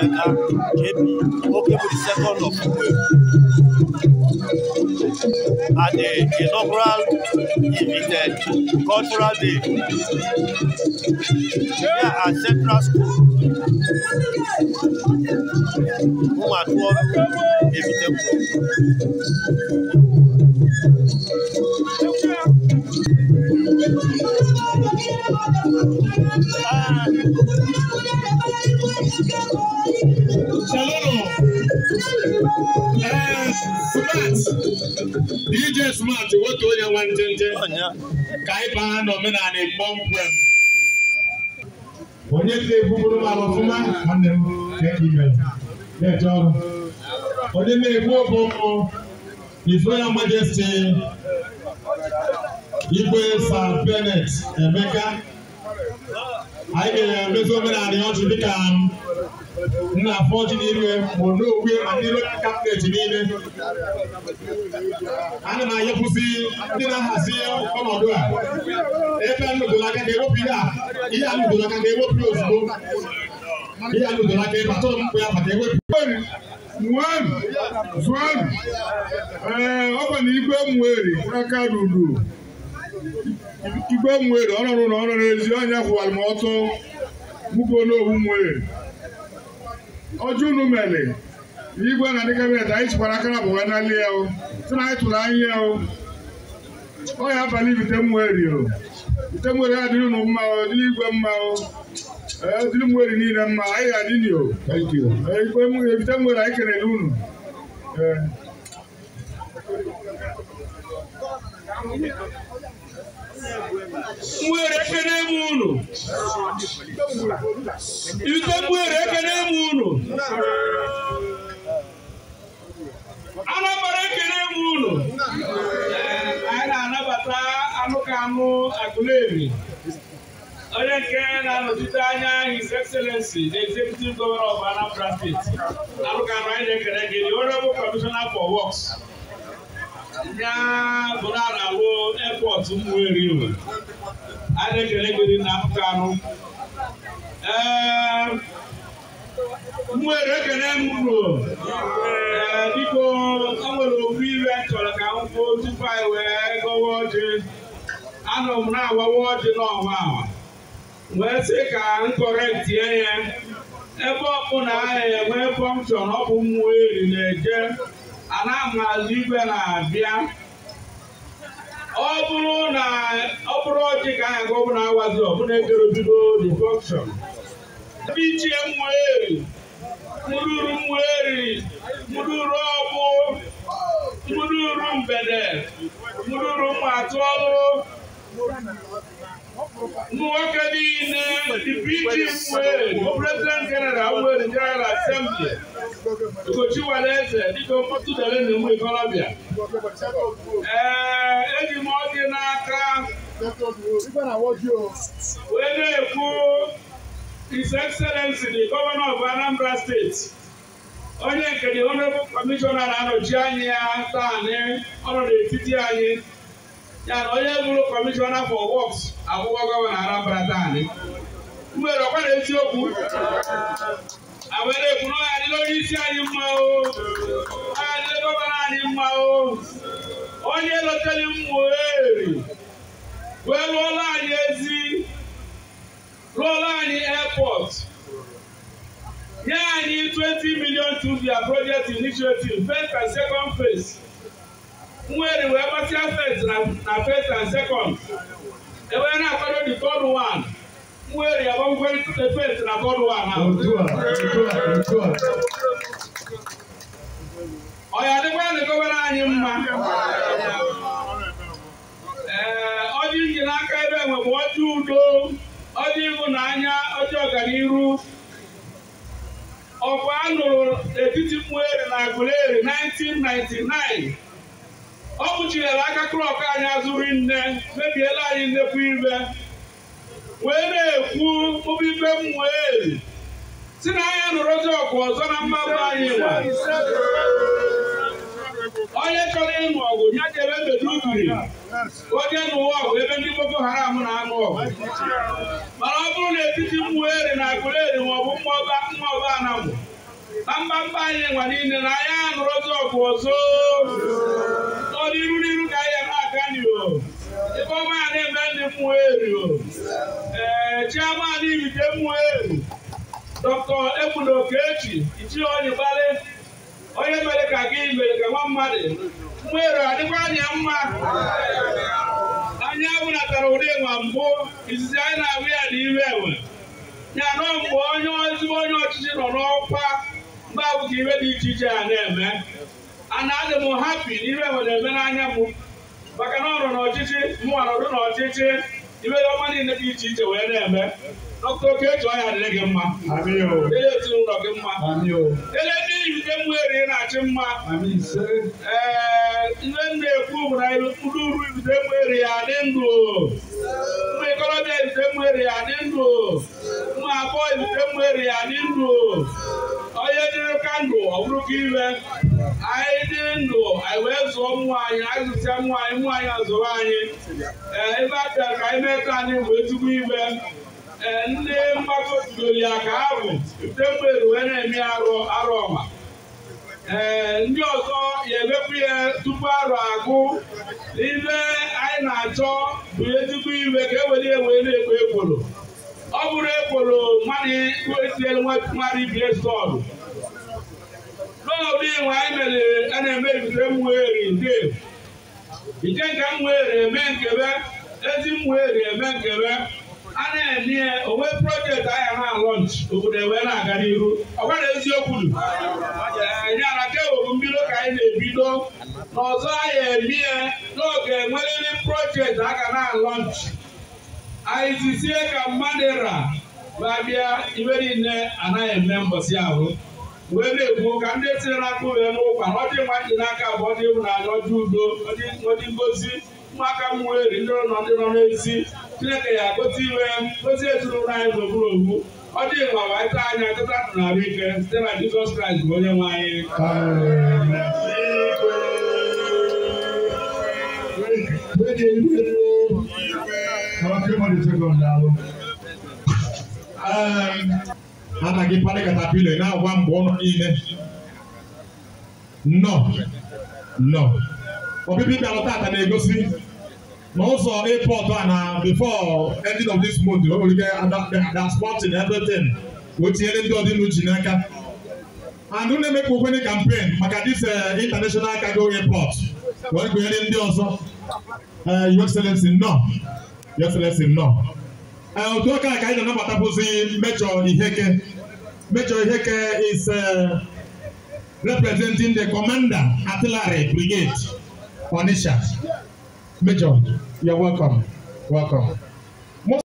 Eka JP okay with the second of April the inaugural invited cultural day here at Central School Umatuoru Ebiteku. Shalom. Smart, DJ Smart, What do you want, ka anyị baa n'omenala Igbo nkwem. Onye ka you m ala ọfụma, nwanne m na-eji mere, na-eje ọrụ. Onye na-egbu obu ụmụ, His Royal Majesty, Igwe Sir Bennett Emeka, anyị ga-emezu omenala ya ọchị dịka m. nna afọ ọjị n'ime bụ n'okwe ma n'ime kabinet niile ana m anyepụsị ndị na-ahazi ọnọdụ a ebe nụdụrụ aka ka ewepụ ihe a ihe a nụdụrụ aka ka ewepụ ya ozugbo ihe a nụdụrụ aka ebe atụrụ m mkpụ ya ka ewepụ nwanu zuanu ee ọ bụ na igwe mweri aka ruru igwe mweri ọrụ na ọrụ n'ezi ọnya kwụwara m ọtọ mụgo n'owu mweri ọjọ unu mere igwe na ndị kabinet anyị tikwara akara bụ nwa n'ali ya sị na anyị tụrụ anyị ya ọ ya abalị bite mmeri o bite mmeri adịrị unu mma o dịrị igwe mma o dịrị mmeri niile mma anyị ga-adị nyo bite mmeri anyị kelere unu ee nwere ekene m unu ike m nwere ekene m unu Anambra ekene m unu anyị na-anabata anụ ka onye nke na-anọchite anya His Excellency the Executive Governor of Anambra State anụ ka anụ anyị na-ekene gị the Honorable Commissioner for Works ya bụrụ a na-awụ airport Ụmụeri a na-ekele gị na apụta anụ ee Ụmụeri ekele m ee biko enwere okwu ire chọrọ ka m kwuo tupu anyị wee gọwa ọjị anọ m na-agbawa ọjị n'ọnwa wee sị ka m kọrọ tie ya ebe ọkpụ na aha enwe pọnchọn ọ bụ mmụọ eri na-eje na maazị igwe na-abịa ọ bụrụ na ọ bụrụ ọchị ka anyị aga ọbụla awazi ọbụla ejere obido the function ebe ichie mmụeri mụrụru mmụeri mụrụru ọgbụ mụrụru mgbede mụrụru mmatụ ọrụ ụmụ nwoke niile dịpụ ichi mmụeri president general nwere general assembly Nkochi nwere eze dịka mkpọtụ dere na ụmụ ikorobịa. Ee, eji m ọ n'aka wee na-ekwu His Excellency the Governor of Anambra State onye nke the Honorable Commissioner na-anọchi anyị ya taanị ọnọ n'etiti anyị ya na onye bụrụ Commissioner for Works akwụkwọ Gọvanọ Anambra taanị. M nwere ọkwa eziokwu àwọn eré ìkùnà àní lórí sí àní mọ o àní lọ́gbọ́n àní mọ o wọ́n ní ẹlọ́tẹ́lẹ̀ ń wò éèrè wẹ́ẹ́ lọ́ọ́lá àní ezi lọ́ọ́lá àní airport yẹ́ àní twenty million to their project initiative first and second phase ń wẹ́ẹ̀rẹ̀ wẹ́ẹ́ bá sí first and first and second ẹ̀wẹ́ náà kọ́dọ̀ the third one. where you are going to Ọ ya dịkwa na anyị mma. Ee, ọjị nji n'aka ebe enwe bụ ọjị udo, ọjị ịhụnanya, ọjị ọganiru. Ọkwa a nụrụ etiti Mmueri na Aguleri 1999. Ọ kpuchiri aka klọk anyị azụrụ nne, mebiela anyị nnekwu ibe. wee na-ekwu obibe mmụọ wee si na anya nụrụzi ọkụ ọzọ na mmadụ anyị nwa onye chọrọ ịnụ ọgụ ya jere bedugiri onye nụwa ọgụ ebe ndị boko haram na-anụ ọgụ mana ọ bụrụ na etiti eri na ọ bụ mma ọba anamụ na mba mbamba anyị nwa niile na anya anụrụzi ọkụ ọzọ ọ n'iru n'iru ka anyị na-aga n'ihu ebe ọma ya na-eme ndị mmụeri o Aliyu Jemuel Dr. Egbunoke Echi Ichioyibale onye mere ka gị mere ka nwa mmadụ mmerụ adịkwa anya mma anya natara ụdị nwa mbụ izizi anyị na-ahụ ya n'ime enwe ya nọ mgbe onye ezigbo onye ọchịchị nọ n'ọkwa mgbe ahụ ka iwe dị iche iche a na-eme ana adị m hapi n'ihe enwe na-eme n'anya m maka na ọ nọ n'ọchịchị mụ nọdụ n'ọchịchị ibe ọma niile dị iche iche wee na-eme ọkụ oke eji ọhịa dịrị gị mma ele ezinụlọ gị mma ele ndị iyi nke mmụ eri na-achị mma ee ihe nna ekwu bụ na ụdị uru ibute mmụ eri ya dị ndụ ụmụ ikorobịa ibute mmụ eri ya dị ndụ ụmụ agbọghọ ibute mmụ eri ya dị ndụ onye dịrị kandụl ndụ ọ bụrụ ka iwe anyị dị ndụ anyị wee zụọ mmụọ anyị anyị zụsịa mmụọ anyị mmụọ anyị azụrụ anyị ee ebe a bịara ka anyị mee ka anyị bụ ezigbo iwe ndị mgbakọ tudoro ya ka ha bụ temgbere wee na-eme arụ arụ ọma ee ndị ọzọ ya emepụ ya tupu arụ agụ n'ibe anyị na-achọ bụ ezigbo iwe ka e were wee na-ekpo ekworo ọ bụrụ ekworo mmadụ mmadụ ibie stọlụ n'obodo iwe anyị mere a na-eme ebite mweri nde ije nke mweri eme nkebe ezi mweri eme nkebe a na-eme ya onwe projekti ahịa na lọnch obodo ewee na-aga n'ihu ọgwara eziokwu nyara kewebụ mbido ka anyị na-ebido n'ọzọ anya eme ya n'oge enweriri projekti a ga na lọnch anyị zizie ka mmadụ ra ma bịa niile anaghị eme mbọsi ahụ wee na-ekwu ka ndị tinyere n'aka uwe n'ụkwa na ọdị mma dị n'aka abụọ dị ịhụnanya ọdị udo ọdị ngozi ụmụaka m weri ndị nọ n'ezi chineke ga-akpọta iwe gozie ezinụlọ anyị gburugburu ogbu ọ dị mma ma ịta anya nkịta ndụ na ahụ ike site na jizọs kraịst bụ onye nwe anyị ana gị kparị katapila na-agwa mgbe ọnụ niile nọ nọ ọbịbịa bịara tata na-egosi na also airport one na before end of this month wey we get ada ada sporting everything wetin ndị ọdị n'uche n'aka and ụlọ emekpa okwene campaign maka this uh, international cargo airport wee gụnyere ndị ọzọ your excellence no your excellence no otu ọka ka anyị na-anabatabụzi mejọ iheke mejọ iheke is uh, representing the commander artillery brigade onisha Major, you're welcome. Welcome.